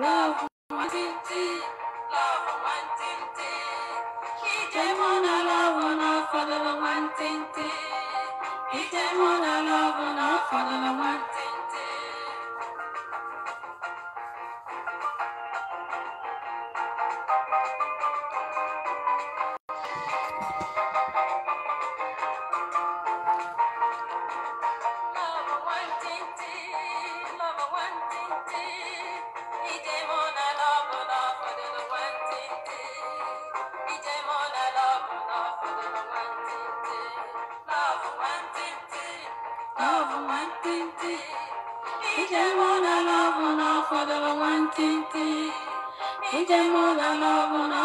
love one ting ting, love one ting ting. Ije mona love una follow the one ting ting. Ije mona love una follow the one. Njem ụlọ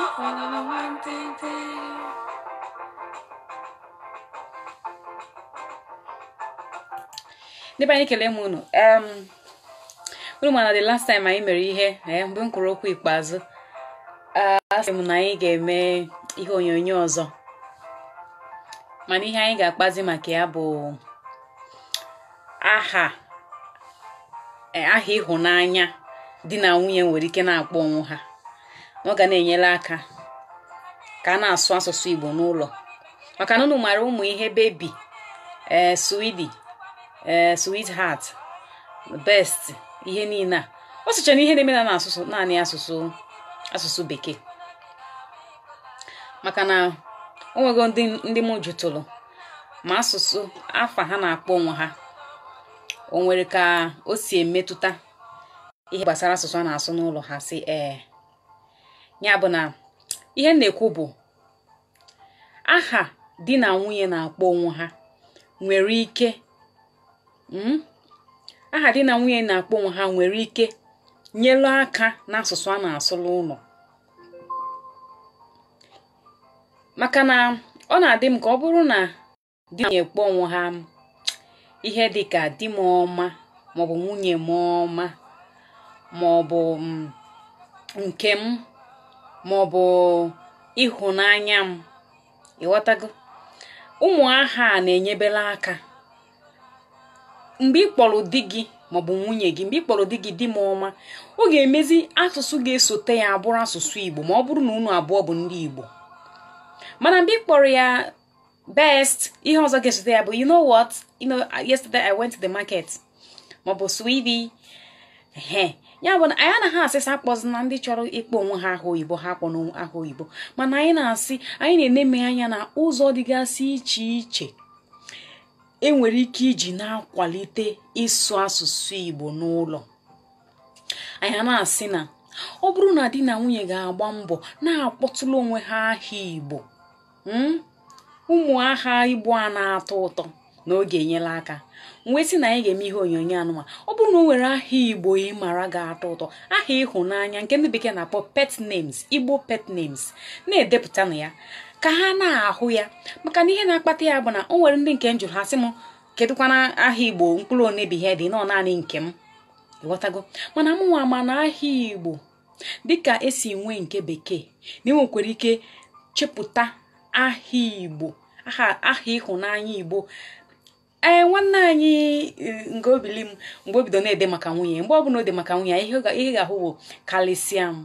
anyị kelee m unu unu ma na the last time anyị mere ihe mgbe m kwuru okwu ikpeazụ asị m na anyị ga-eme ihe onyonyo ọzọ mana ihe anyị ga-akpazi maka ya bụ aha aha ịhụnanya di na nwunye nwere ike na-akpọ onwe ha ọ ga na-enyere aka ka a na-asụ asụsụ Igbo n'ụlọ maka na unu mara ụmụ ihe bebi ee swidi ee best ihe niile a ọ na ihe na-eme na naanị asụsụ asụsụ bekee maka na o nwego ndị m jụtụrụ ma asụsụ afa ha na-akpọ onwe ha o nwere ka o si emetụta ihe gbasara asụsụ a na-asụ n'ụlọ ha si ee eh, ya bụ na ihe na-ekwu bụ aha di na nwunye na-akpọ onwe ha nwere ike hmm? aha nyelu aka n'asụsụ a na-asụlụ ụlọ maka na ọ na-adị m ka ọ bụrụ na di na na-ekpọ onwe ha ihe dị ka di m ọma maọbụ nwunye m ọma maọbụ hmm, nke m maọbụ ịhụnanya m ịghọtago ụmụ aha a na-enyebela aka mgbe ị kpọrọ di gị maọbụ nwunye gị mgbe ị kpọrọ di gị di m ọma ọ ga-emezi asụsụ ga-esote ya abụrụ asụsụ Igbo ma ọ bụrụ na unu abụọ bụ ndị Igbo mana mgbe ị kpọrọ ya best ihe ọzọ ga-esote ya bụ you know what you know yesterday I went to the market maọbụ sweetie ya bụ na anyị anaghị asịsa akpọzi na ndị chọrọ ịkpọ onwe ha aha oyibo ha kpọ ahụ oyibo mana anyị na-asị anyị na-eneme anya na ụzọ dịgasị iche iche enwere ike iji na-akwalite ịsụ asụsụ igbo n'ụlọ anyị na-asị na ọ bụrụ na di na nwunye ga-agba mbọ na-akpọtụrụ onwe ha aha igbo hmm? ụmụ aha igbo a na-atọ ụtọ na oge enyela aka wee sị na anyị ga-eme ihe onyonyo anụma ọ bụrụ na o nwere aha igbo ị mara ga-atọ ụtọ aha ịhụnanya nke ndị bekee na-akpọ pet names igbo pet names na-edepụtanụ ya ka ha na-ahụ ya maka na ihe na-akpata ya bụ na ọ nwere ndị nke m jụrụ ha sị m kedụkwana aha igbo mkpụrụ onebi ihe dị nọ naanị nke m ịghọtago mana mụnwa ma na aha igbo dịka esi nwee nke bekee na enwekwara ike chepụta aha igbo aha ịhụnanya igbo ee eh, nwanne anyị eh, nke obili m mgbe o bido na-ede maka nwunye mgbe ọ bụla o de maka nwunye ihe ga-ahụ bụ karịsịa m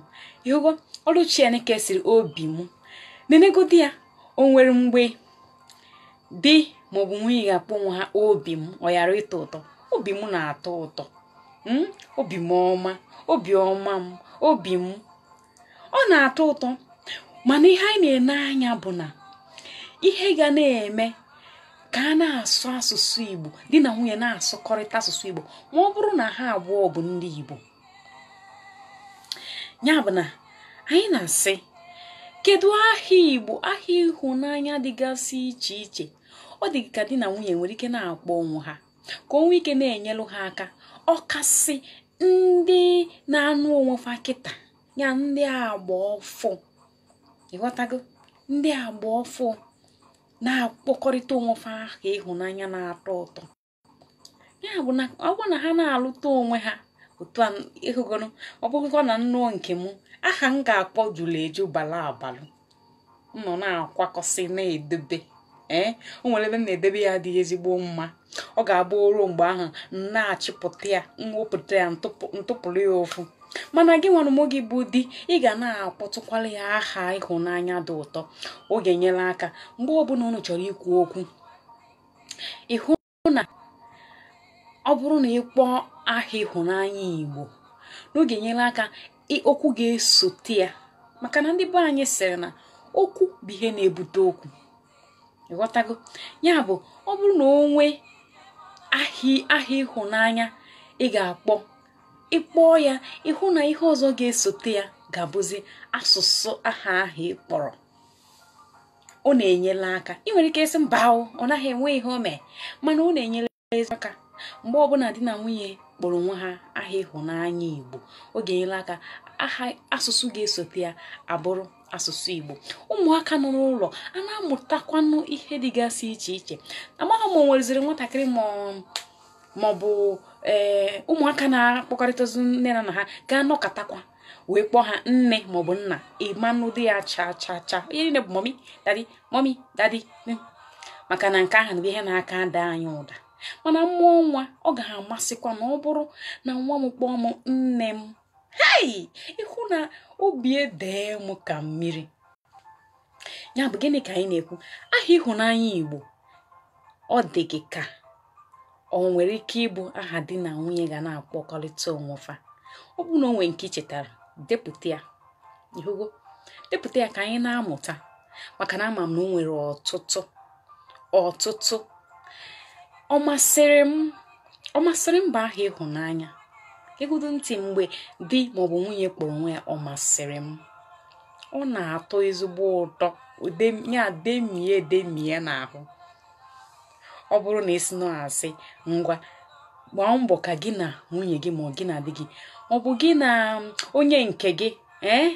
ihụgo ọrụ Chineke siri obi m nenegodi ya o nwere mgbe di maọbụ nwunye ga-akpọ onwe ha obi m ọ ghara ịtọ ụtọ obi m na-atọ ụtọ obi m ọma obi ọma m obi m ọ na-atọ ụtọ mana ihe anyị na-ene anya bụ na ihe ga na-eme ka a na-asụ asụsụ igbo di na nwunye na-asụkọrịta asụsụ igbo ma ọ bụrụ na ha abụọ bụ ndị igbo ya bụ na anyị na-asị kedu aha igbo aha ịhụnanya dịgasị iche iche ọ dị ka di na nwunye nwere ike na-akpọ onwe ha ka onwe ike na-enyelụ ha aka ọkasị ndị na-anụ onwe fa kịta ya ndị agba ịghọtago ndị agba ọfụ na-akpọkọrịta onwefe ha ka ịhụnanya na-atọ ụtọ ya bụ na ọ bụrụ na ha na-alụta onwe ha otu a ịhụgoro ọ na nnụọ nke m aha m ga-akpọ jụrụ eju bala abalụ nọ na-akwakọsị na-edobe ee eh, o nwere ebe m na-edebe ya dị ezigbo mma ọ ga-abụ oruo mgbe ahụ m na-achịpụta ya mwepụta ya ntụpụrụ ya ụfụ mana gị nwere ụmụ gị bụ di ị ga na-akpọtụkwara ya aha ịhụnanya dị ụtọ oge nyere aka mgbe ọbụla unu chọrọ ikwu okwu ịhụ na ọ bụrụ na kpọọ aha ịhụnanya igbo n'oge nyere aka okwu ga-esote ya maka na ndị be anyị sịrị na okwu bụ ihe na-ebute okwu ịghọtago ya bụ ọ bụrụ na o nwee aha ịhụnanya ị ga-akpọ ịkpọọ ya ịhụ na ihe ọzọ ga-esote ya ga-abụzi asụsụ aha ahụ ị kpọrọ ọ na-enyela aka ị nwere ike ịsị mba ọ naghị enwe ihe o mee mana ọ na enyere aka mgbe ọbụla di na nwunye kpọrọ onwe ha aha ịhụnanya igbo ọ ga-enyere aka aha asụsụ ga-esote ya abụrụ asụsụ igbo ụmụaka nọ n'ụlọ a na-amụtakwanụ ihe dịgasị iche iche amaghị m o nweziri nwatakịrị ma maọbụ ee eh, ụmụaka na-akpọkọrịtazi nne na nna ha gaa anọkọtakwa wee kpọọ ha nne maọbụ nna ịmanụ dị ya cha cha cha onye niile bụ mọmi dadi mọmi dadi maka na nke ahụ na ihe na-aka ada anyị ụda mana mmụọ nwa ọ ga-amasịkwa na ọ bụrụ na nwa m kpọọ m nne m hei ịhụ na obi edee m ka mmiri ya bụ gịnị ka anyị na-ekwu aha ịhụnanya Igbo ọ dị gị ka o nwere ike ịbụ aha di na nwunye ga na-akpọkọrịta onwe fa ọ bụ na o nke ichetara depụta ya depụta ya ka anyị na-amụta maka na ama m na o nwere ọtụtụ ọtụtụ ọ masịrị m bụ aha ịhụnanya ịgụdụ ntị mgbe di maọbụ nwunye kpọrọ onwe ya ọ masịrị m ọ na-atọ ezigbo ụtọ ya demie demie n'ahụ ọ bụrụ na isi nọ asị ngwa gbaa mbọ ka gị na nwunye gị ma ọ gị na dị gị ọ bụ gị na um, onye nke gị ee eh?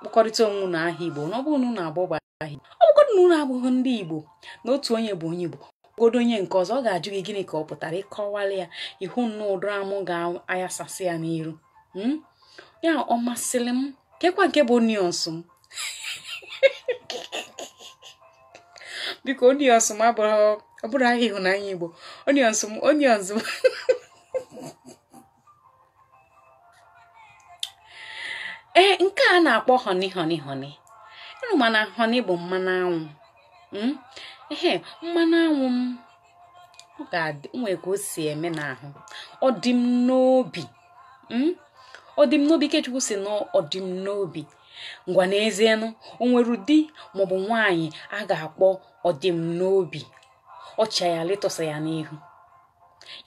kpọkọrịta onwe na aha igbo na ọ bụrụ na unu abụọ bụ aha igbo ọ bụgodị na ụlọ abụghị ndị igbo na otu onye bụ onye igbo ogodo onye nke ọzọ ọ ga-ajụ gị gịnị ka ọ pụtara ịkọwala ya ihu nna ụdọrọ amụ ga-ayasasị ya n'iru hmm? ya ọ masịrị m kekwa nke bụ onions m biko onions m abụrụ ọ bụrụ ahịa ịhụnanya igbo onions m onions m ee nke a na-akpọ honi honi honi ịnụ mana honi bụ mmanụ anwụ hmm? ehe mmanụ anwụ m ga-adị nwee ka o si eme n'ahụ ọ dị m n'obi hmm? ọ dị m n'obi ikechukwu si na n'obi ngwa n'ezienụ o nwere di maọbụ nwaanyị a ga-akpọ ọdịm n'obi ọcha ya letọsa ya n'ihu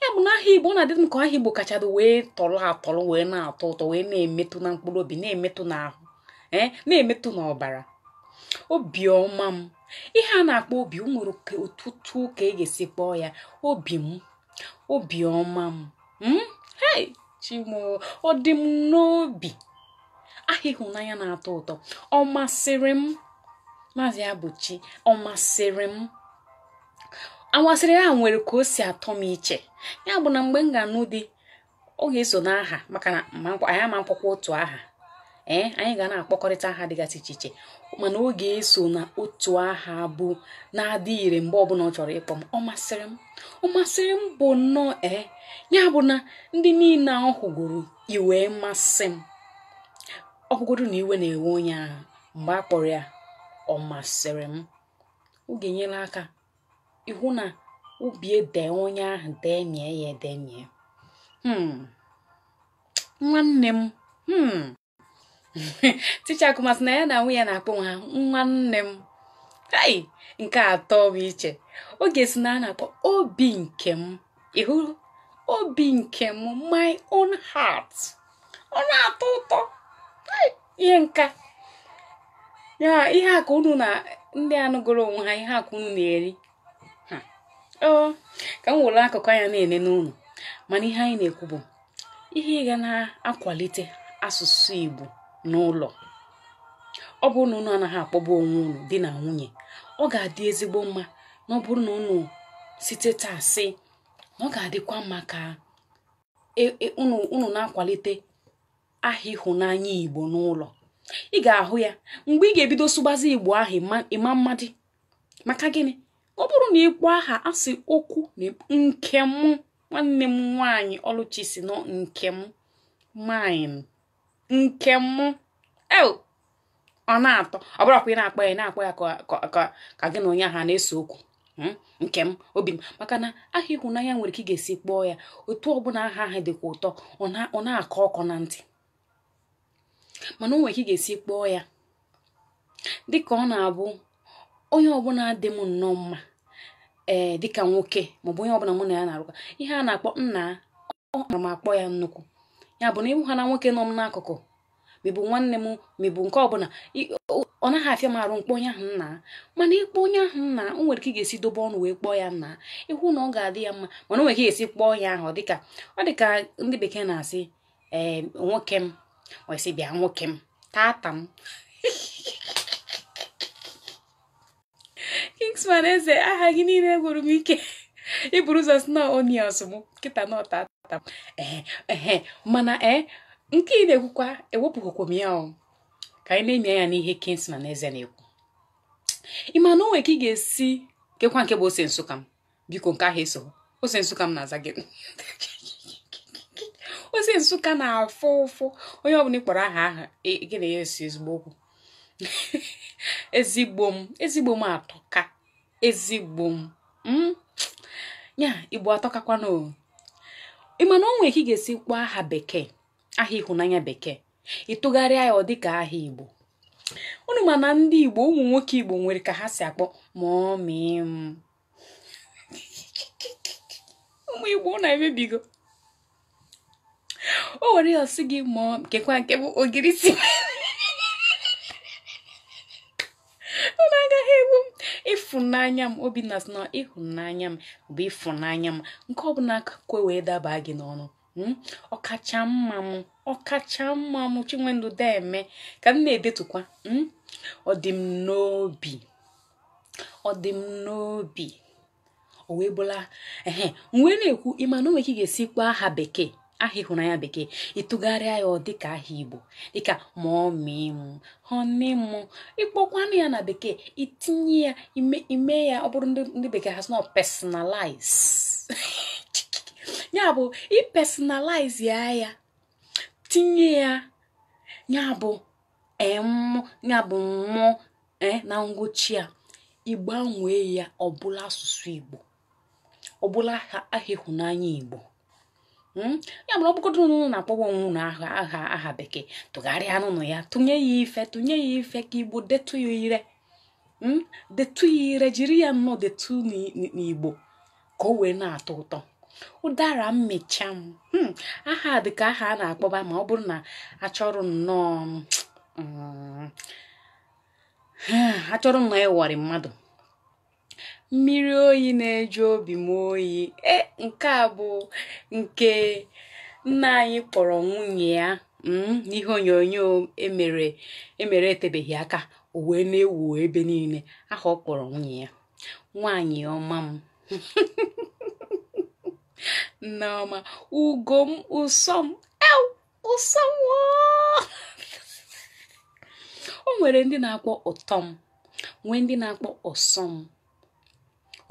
ya bụ na aha igbo ọ na-adịtụ m ka aha igbo kachadụ wee tọrọ atọrọ wee na-atọ ụtọ wee na-emetụ na mkpụrụ obi na-emetụ n'ahụ ee eh, na-emetụ n'ọbara obiọma m ihe a na-akpọ obi o nwere otutu ka e ga-esi kpọọ ya obi m obiọma m m hmm, chimo ọ dị m n'obi aha ịhụnanya na-atọ ụtọ ọ masịrị m maazị abụchi ọ masịrị m amasịrị ya nwere ka o si atọ m iche ya bụ na mgbe m ga-anụ di ọ ga-eso n'aha maka na anyị ama otu aha ee anyị ga na-akpọkọrịta aha dịgasị iche iche mana ọ ga-eso na otu aha bụ na-adị ire mgbe ọbụla ọ chọrọ ịkpọ m ọ masịrị m ọ masịrị m bụ nnọọ ee ya bụ na ndị niile ahụ hụgoro iwee masị m ọgwụgodu na iwe na-ewe onye ahụ mgbe a kpọrọ ya ọ masịrị m oge enyela aka ịhụ na obi dee onye ahụ dee mie ya ede mie hmm. nwanne m hmm. ticha kụmasị na ya na nwunye ya na-akpọ ha nwanne m kai nke atọ bụ iche oge si na a na-akpọ obi nke m ịhụ obi nke m my own heart ọ na-atọ ụtọ ihe nka ya ihe a unu na ndị anụgoro onwe ha ihe akụ unu na-eri oo ka m were akụkụ anya na-ene n'ụlọ mana ihe anyị na-ekwu bụ ihe ịga na-akwalite asụsụ Igbo n'ụlọ ọ bụrụ na ụnụ anaghị akpọba onwe ụnụ di na nwunye ọ ga-adị ezigbo mma na ọ bụrụ na ụnụ site taa sị na ọ ga-adịkwa mma ka ụnụ e, e, na-akwalite aha ịhụnanya igbo n'ụlọ ị ga-ahụ ya mgbe ị ga-ebido sụgbazi igbo ahụ ịma mmadụ maka gịnị ọ bụrụ na ịkpọ aha asị okwu na nke m nwanne m nwaanyị ọlụchi si nọ nke m mine nke m ọ na-atọ ọ bụrụkwa ị na-akpọ ya na-akpọ ya ka gị na onye ahụ na-ese okwu hmm? nke m obi m maka na aha ịhụnanya nwere ike ị ga-esi kpọọ ya otu ọbụla aha ahụ dịkwa ụtọ ọ na-akọ ọkọ na ntị mana o ka ị ga-esi kpọọ ya dịka ọ na-abụ onye ọbụla dị m nnọọ mma ee eh, dịka nwoke maọbụ onye ọbụla mụ na ya na-arụkọ ihe a na-akpọ nna ọmara m akpọ ya nnukwu ya bụ na ịhụ ha na nwoke nọ m n'akụkụ mebụ nwanne m mebụ nke ọbụla ọ naghị afịa m arụ mkpọ onye ahụ nna mana ịkpọ onye ahụ nna o nwere ị ga-esi dobe ọnụ wee kpọọ ya nna ịhụ na ọ ga-adị ya mma mana o nwere ị ga-esi kpọọ ya ahụ dịka ọ dịka ndị bekee na-asị ee eh, nwoke m ọsị bịa nwoke m tata m kingsman eze aha gị niile gwụrụ m ike iburu ụzọ sno onions m kịta na ọtata m ee mana ee eh, nke ị na-ekwukwa ewepụghịkwa m ya ọ ka anyị na-eme ya n'ihe kingsman eze na-ekwu ị ma na ka ị ga-esi kekwa nke bụ ose nsụka m biko nke ahụ eso ose nsụka m na-aza gị ozi nsụka na-afụ ụfụ onye ọbụla ịkpọrọ aha aha gị na ya esi ezigbo okwu ezigbo m ezigbo m atọka ezigbo m hmm? ya igbo atọkakwana o mana onwe ka ị ga-esi kpọọ aha bekee aha ịhụnanya bekee ịtụgharịa ya ọ dịka aha igbo unu ma na ndị igbo ụmụ nwoke igbo nwere ka ha si akpọ mọmị m ụmụ igbo na-emebigo o were ya ọsị gị mụọ nkekwa nke bụ ogiri si agaghị egbu m ịfụnanya m obinna sị na ịhụnanya m bụ ịfụnanya m nke ọbụla akakwe wee daba gị n'ọnụ hmm? ọkacha mma m ọkacha mma m chinwendu deme ka m na-edetukwa hmm? ọ dị m n'obi ọ n'obi o wee bụla ehe ekwu ịma na ka ị ga-esi aha bekee aha ịhụrụ anya bekee ịtụgharịa ya ọ dịka aha igbo dịka ma ọ mịị mụ honeymoon ịkpọkwanụ ya na bekee itinye ya ime ya ọ bụrụ ndị bekee has not personalize ya bụ ipersonalize ya ya tinye ya ya bụ m ya bụ mmụ eh, na ngwụchi a ịgbanwee ya ọbụla asụsụ igbo ọbụla aha ịhụnanya igbo Hmm? ya mara ọ nụnụ na-akpọwa nwụrụ aha aha bekee tụgharịa n'ụlọ ya tụnye ya ife tụnye ya ife ka igbo detu ya ire hmm? ire jiri ya nnọọ detu n'igbo ka o wee na-atọ ụtọ ụdara mmecha m hmm? aha dị ka aha a na-akpọba ma ọ bụrụ na achọrọ nnọọ mm, mm, achọrọ nnọọ ịwọrị mmadụ mmiri oyi na-eju obi m oyi e, nke a bụ nke nna anyị kpọrọ nwunye ya mm, n'ihe onyonyo emere emere etebeghị aka uwe na-ewu ebe niile aha ọ kpọrọ nwunye ya Nwanyị ọma m nneọma ugo m ụsọ m o nwere ndị na-akpọ ụtọm nwee ndị na-akpọ ọsọ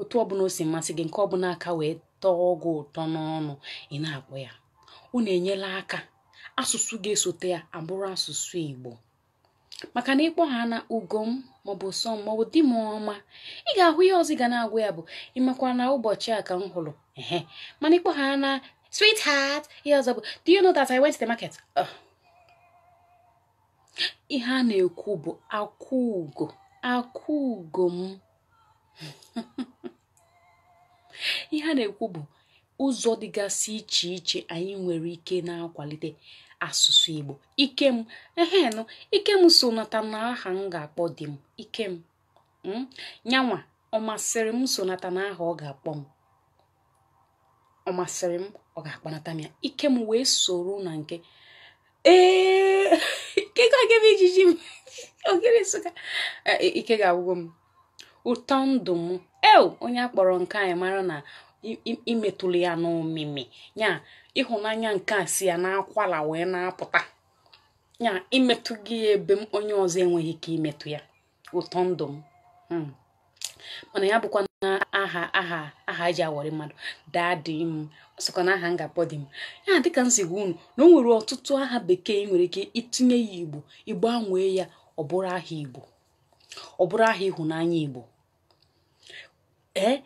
otu ọbụla o si masị gị nke ọbụla aka wee tọọ ọgwụ ụtọ n'ọnụ ị na-akpọ ya unu na-enyela aka asụsụ ga-esote ya abụrụ asụsụ Igbo maka na ịkpọ ha na ugom maọbụ sọ m maọbụ di m ọma ị ga-ahụ ihe ọzọ ị ga na-agwa ya bụ ịmakwa na ụbọchị a ka m hụrụ ehe mana ịkpọ ha na sweetheart ihe ọzọ bụ do you know that I went to the market ihe a na-ekwu bụ akwụ ugo akwụ ugo m ihe a na-ekwu bụ ụzọ dịgasị iche iche anyị nwere ike na-akwalite asụsụ Igbo ikem ehenụ ikem so nata na aha m ga-akpọ di m ikem hmm? nyanwa ọ masịrị m sonata n'aha na aha ọ ga-akpọ m ọ masịrị m ọ ga-akpanata m ya wee soro na nke ee ike e, e, ga-agwụgo m ụtọ ndụ m eo onye akpọrọ nke anyị mara na imetụlụ ya n'omimi ya ịhụnanya nke a si ya n'akwala wee na-apụta ya imetụ gị ya ebe m onye ọzọ enweghị ike imetụ ya ụtọ ndụ m hmm. mana ya bụkwa na aha aha aha e mmadụ daa m sokwa na aha ngapọ dị m ya dịka m si unu na o nwere ọtụtụ aha bekee nwere ike itinye ya igbo igbo anwee ya ọ bụrụ aha igbo ọ bụrụ aha ịhụnanya igbo ee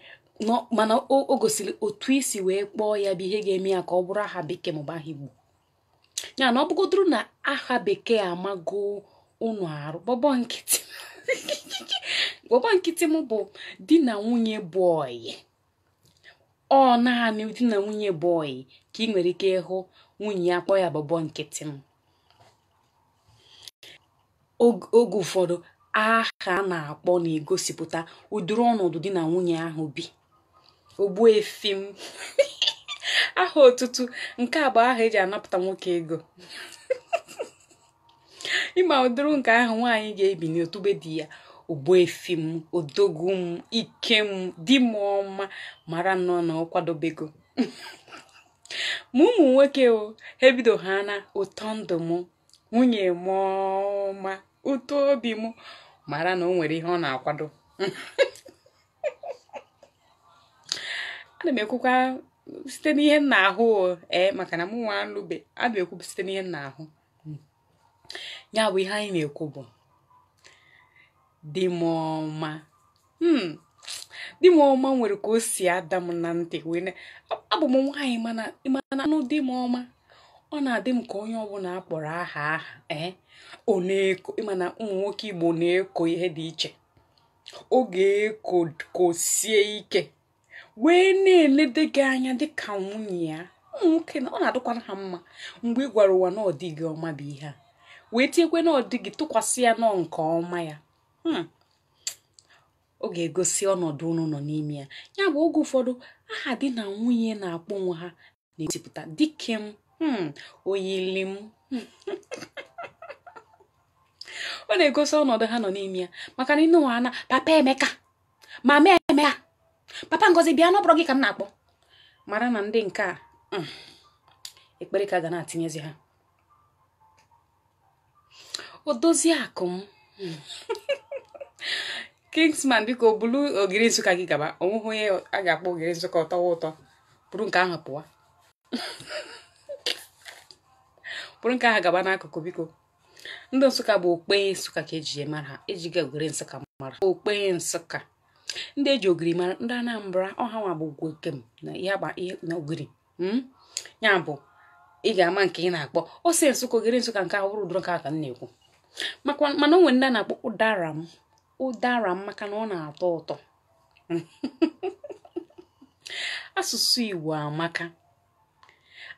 mana o gosiri otu isi wee kpọọ ya bụ ihe ga-eme ya ka ọ bụrụ aha bekee maọbụ aha igbo ya na ọ bụgodoro na aha bekee amago ụnụ arụ bọbọ nkịtị gbọbọ nkịtị m bụ di na nwunye bọyị ọ naanị di na nwunye bọyị ka ị nwere ike ịhụ nwunye ya kpọọ ya bọbọ nkịtị oge ụfọdụ aha a na-akpọ na-egosipụta ụdịrị ọnọdụ di na nwunye ahụ bi ogbuefi efim aha otutu nke a bụ aha eji anapụta nwoke ego ịma ụdịrị nke ahụ nwaanyị ga-ebi n'otube di ya ogbuefi efim odogwu m ike m di m ọma mara nnọọ na ọkwadobego ma ụmụ nwoke o ha ebido ha na ụtọ ndụ m nwunye m ọma ụtọ obi m mara na o nwere ihe ọ na-akwado ana m ekwukwa site n'ihe m na-ahụ ee maka na m nwa alụbe ana m ekwubu site n'ihe m na-ahụ ya bụ ihe anyị na-ekwu bụ dị m ọma hmm, di m ọma nwere ka o si ada m na ntị wee abụ m nwaanyị mana anụ di m ọma ọ na-adị m ka onye ọbụla a kpọrọ aha aha ee eh, ọ na-eko ịma na ụmụ nwoke Igbo na-eko ihe dị iche Oge ga-eko sie ike wee na-elede gị anya dịka nwunye ya ụmụ na ọ na-adịkwara ha mma mgbe ị gwara ụwa na ọdịghị ọma bụ ihe a wee tinyekwe na ọ tụkwasị ya nọ nke ọma ya oge hmm. ga-egosi ọnọdụ unu nọ n'ime ya ya bụ oge ụfọdụ aha di na nwunye na-akpọ onwe ha na esipụta dike m Hmm, oyili m ọ na-egosi ọnọdụ ha nọ n'ime ya maka na inu ana papa emeka mama emeka papa ngozi bịa n'ọbụrụ gị ka m na-akpọ mara na ndị nke a hmm, ekpere ka ga na-atinyezi ha o dozie akụ m kingsman biko bulu ogiri nsụka gị gaba onweghị onye a ga-akpọ ogiri nsụka ọtọwa ụtọ bụrụ nke ahụ pụwa bụrụ nke ahụ gaba n'akụkụ biko ndị nsụka bụ okpenye nsụka ka eji mara ha ejiga ogiri nsụka mara okpenye nsụka ndị eji ogiri mara ndị anambra ọha nwa bụ gwokem na ihe na ogiri hmm? ya bụ ị ga-ama nke ị na-akpọ ose nsụka ogiri nsụka nke ahụ bụrụ ụdụrụ nke ahụ m na-ekwu mana o nwere ndị a na-akpọ ụdara m ụdara m maka na ọ na-atọ ụtọ asụsụ Igbo amaka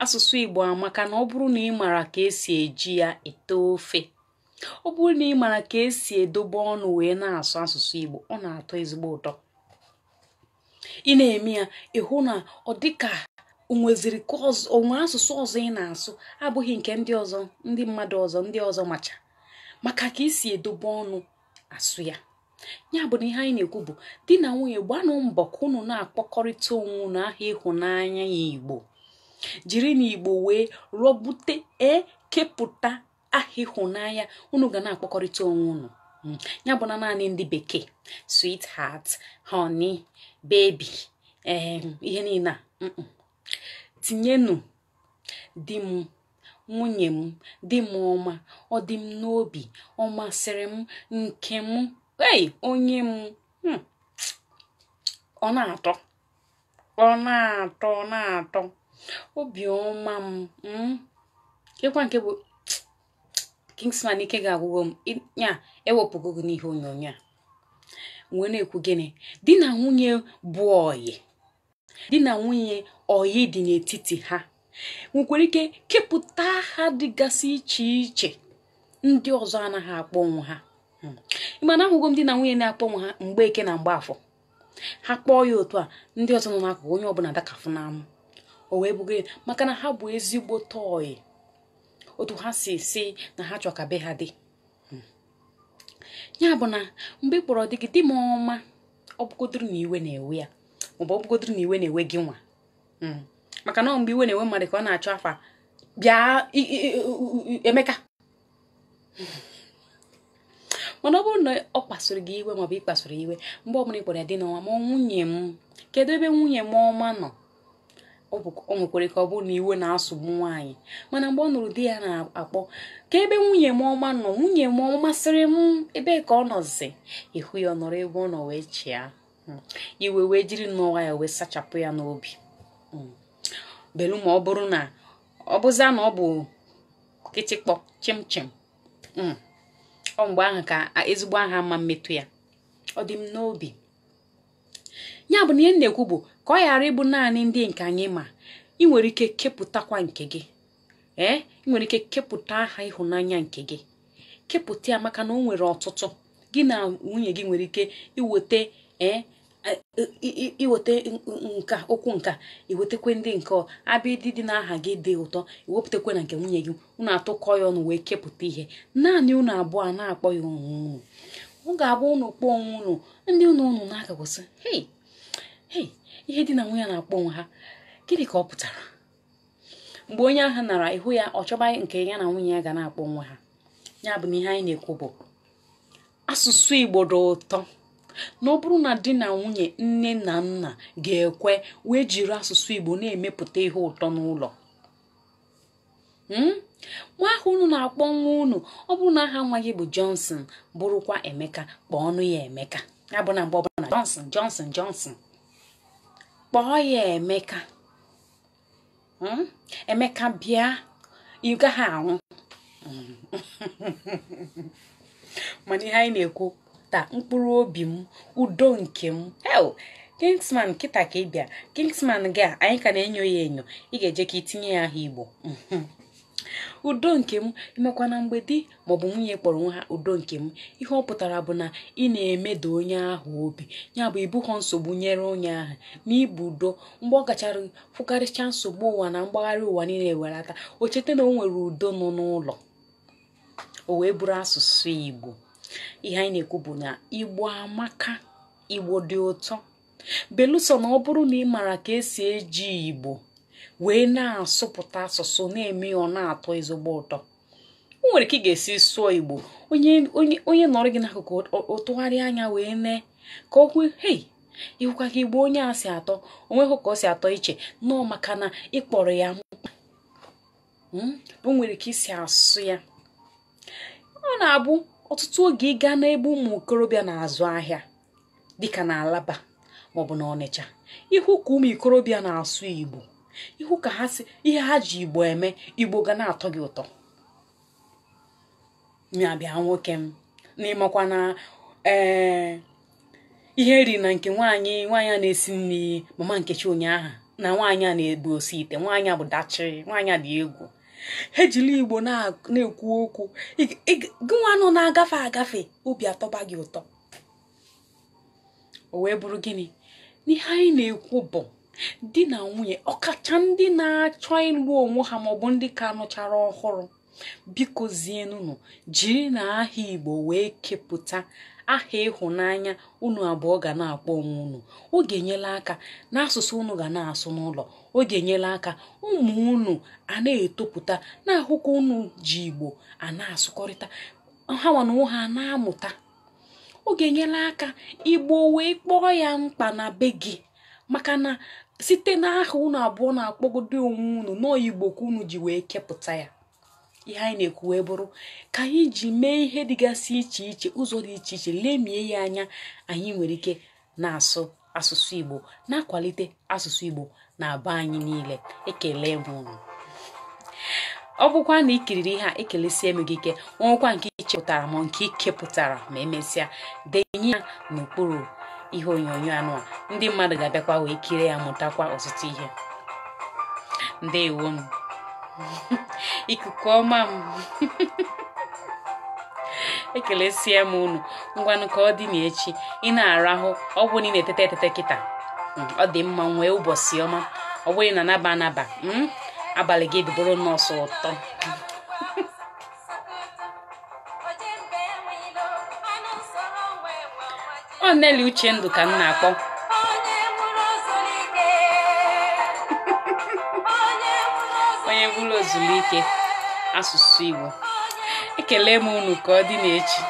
asụsụ igbo amaka na ọ bụrụ na ị mara ka esi eji ya ete ofe ọ bụrụ na ị mara ka esi edobe ọnụ wee na-asụ asụsụ igbo ọ na-atọ ezigbo ụtọ ị na-eme ya ịhụ na ọ dịka onweziri ka onwe asụsụ ọzọ ị na-asụ abụghị nke ndị ọzọ ndị mmadụ ọzọ ndị ọzọ macha maka ka esi edobe ọnụ asụ ya ya bụ na ihe anyị na-ekwu bụ di na nwunye gbanụ mbọ ka unu na-akpọkọrịta onwe unu aha ịhụnanya ya igbo jiri n'Igbo wee rọbute e kepụta aha ịhụnanya unu ga na-akpọkọrịta onwe unu hmm. ya bụ na naanị ndị bekee swit honey honi, ehm, bebi ihe niile a tinyenu di m nwunye m di m ọma ọ dị m n'obi ọ masịrị m nke m onye m hmm. ọ na-atọ ọ na-atọ ọ na-atọ obiọma m m hmm? kekwa nke bụ Kingsman ike ga-agwụgo m ya ewepụgo gị n'ihe onyonyo a wee na-ekwu gịnị di na nwunye bụ oyi. di na nwunye oyi dị n'etiti ha nwekwara ike kepụta ha dịgasị iche iche ndị ọzọ anaghị akpọ onwe ha hmm. ịmana ahụgo m di na nwunye na-akpọ onwe ha mgbe eke na mgbe afọ ha kpọọ ya otu a ndị ọzọ nọ n'akụkụ onye ọbụla dakafụ n'amụ o wee bụgo maka na ha bụ ezigbo tọị otu ha si si na ha chọ ka be ha dị hmm. ya bụ na mgbe ị kpọrọ dị gị di m ọma ọ bụgodoro na iwe na-ewe ya maọbụ ọ bụgodoro na iwe na-ewe gị nwa hmm. maka na mgbe iwe na-ewe mmadụ ka ọ na-achọ afa bịa emeka mana ọ bụrụ na ọ kpasoro gị iwe maọbụ ị kpasoro iwe mgbe ọ bụla ị kpọrọ ya dị n'ọnwa ma nwunye m kedu ebe nwunye m ọma nọ o nwekwere ka ọ bụrụ na iwe na-asụgbu nwaanyị mana mgbe ọ nụrụ di ya na-akpọ ka ebe nwunye m ọma nọ nwunye m ọ masịrị m ebe ka ọ nọzi ịhụ ya ọ nọrọ ebe ọ nọ wee chịa hmm. iwe wee jiri nnọwa ya wee sachapụ ya n'obi hmm. belu ma ọ bụrụ na ọ bụza na ọ bụ kịtịkpọ chimchim hmm. ọ mgbe ahụ ka ezigbo aha mma mmetụ ya ọ dị m n'obi ya bụ na ihe na-ekwu bụ ka ọ ghara ịbụ naanị ndị nke anyị ma ị nwere ike kepụtakwa nke gị ee ị nwere ike kepụta aha ịhụnanya nke gị kepụta ya maka na o nwere ọtụtụ gị na nwunye gị nwere ike iweta ee nka okwu nka iwetekwe ndị nke ịdị dị n'aha gị dị ụtọ iwepụtakwe na nke nwunye gị ụnụ atụkọ ya ọnụ wee kepụta ihe naanị ụnụ abụọ na-akpọ ya onwe unu ọ ga-abụ ụnụ kpọọ onwe ụnụ ndị ụnụ ụnụ na-agakwasị hei ihe dị na nwunye na-akpọ ha gịnị ka ọ pụtara mgbe onye ahụ nara ihu ya ọ chọba nke ya na nwunye ya ga na-akpọ onwe ha ya bụ na ihe anyị na-ekwu bụ asụsụ igbo dị ụtọ na ọ bụrụ na di na nwunye nne na nna ga-ekwe wee jiri asụsụ igbo na-emepụta ihe ụtọ n'ụlọ hmm? nwa ahụ unu na-akpọ nwa unu ọ bụrụ na aha nwa gị bụ Johnson bụrụkwa Emeka kpọọ ọnụ ya Emeka ya bụ na mgbe ọbụla Johnson Johnson Johnson kpọọ ya emeka hmm? emeka bịa ị gaghị anwụ mana ihe anyị na-ekwu taa mkpụrụ obi m udo nke m kingsman kịta ka ị bịa kingsman gị a anyị ka na-enyo ya enyo ị ga-eje ka itinye ya aha igbo udo nke m imekwa na mgbedi maọbụ nwunye kpọrọ onwe ha udo nke m ihe ọ pụtara bụ na ị na-emeda onye ahụ obi ya bụ ibughọ nsogbu nyere onye ahụ na ibu udo mgbe ọ gachara fụkarịcha nsogbu ụwa na mgbagharị ụwa niile welata o cheta na o nwere udo nọ n'ụlọ o wee bụrụ asụsụ igbo ihe anyị na-ekwu bụ na igbo amaka igbo dị ụtọ belụsọ na ọ bụrụ na ị maara ka esi eji igbo wee na-asụpụta asụsụ na-eme ọ na-atọ ezigbo ụtọ o nwere ka ị ga-esi sụọ Igbo onye nọrọ gị n'akụkụ o anya wee nee ka o kwuo hei ịhụkwa ka Igbo onye a si atọ Onwe ka o si atọ iche nọọ maka na ịkpọrọ ya hmm? o nwere ka isi asụ ya ọ na-abụ ọtụtụ oge ị gaa n'ebe ụmụ okorobịa na-azụ ahịa dịka na Alaba maọbụ na Ọnịcha ihu ka ụmụ ikorobịa na-asụ Igbo ihu ka ha si ihe ha ji igbo eme igbo ga na-atọ gị ụtọ ya nwoke m n'ịmakwa na ee eh, ihe ri na nke nwaanyị nwaanyị a na-esi nri mama nkechi ụnyaahụ na nwaanyị a na egbu osi ite nwaanyị a bụ dachi nwaanyị a dị egwu ha ejiri igbo na-ekwu okwu gị nwa nọ na-agafe agafe obi atọba gị ụtọ o wee bụrụ gịnị n'ihe anyị na-ekwu bụ di na nwunye ọkacha ndị na-achọ ịlụ onwe ha maọbụ ndị ka nụchara ọhụrụ biko zienunu jiri na aha igbo wee kepụta aha ịhụnanya unu abụọ ga na-akpọ onwe unu ọ ga-enyela aka n'asụsụ unu ga na-asụ n'ụlọ ọ ga aka ụmụ unu a na-etopụta na-ahụkwa unu ji igbo a na-asụkọrịta ha nwana ụha a na-amụta ọ ga aka igbo wee kpọọ ya mkpa na be gị maka na site n'aha unu abụọ na-akpọgodo onwe unu n'oyigbo ka unu ji wee kepụta ya ihe anyị na-ekwu wee bụrụ ka anyị ji mee ihe dịgasị iche iche ụzọ dị iche iche lemie ya anya anyị nwere ike na-asụ asụsụ igbo na-akwalite asụsụ igbo na aba anyị niile ekele m unu ọ bụkwa na ikiriri ihe a ekelesie m gị ike nwekwa nke ichepụtara m nke ikepụtara ma emesịa denye ya n'okpuru ihe onyonyo anụ a ndị mmadụ ga-abịakwa wee kirie ya mụtakwa ọtụtụ ihe ndị m ikuku ọma m ekelesie m unu ngwanụ ka ọ dị n'echi ị na-arahụ ọ bụrụ na ị na eteta eteta kịta hmm, ọ dị mma nwee ụbọchị ọma ọ bụrụ na anaba anaba hmm, abalị gị dịbụrụ nọọsụ ụtọ ọ uche ndụ ka m na-akpọ onye bụrụ ozulike asụsụ Igbo ekele m unu ka ọ dị n'echi